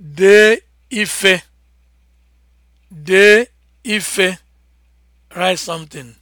dee ife de ife write something